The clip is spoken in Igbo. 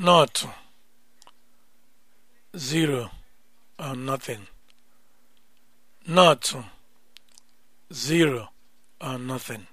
not zero or nothing not zero or nothing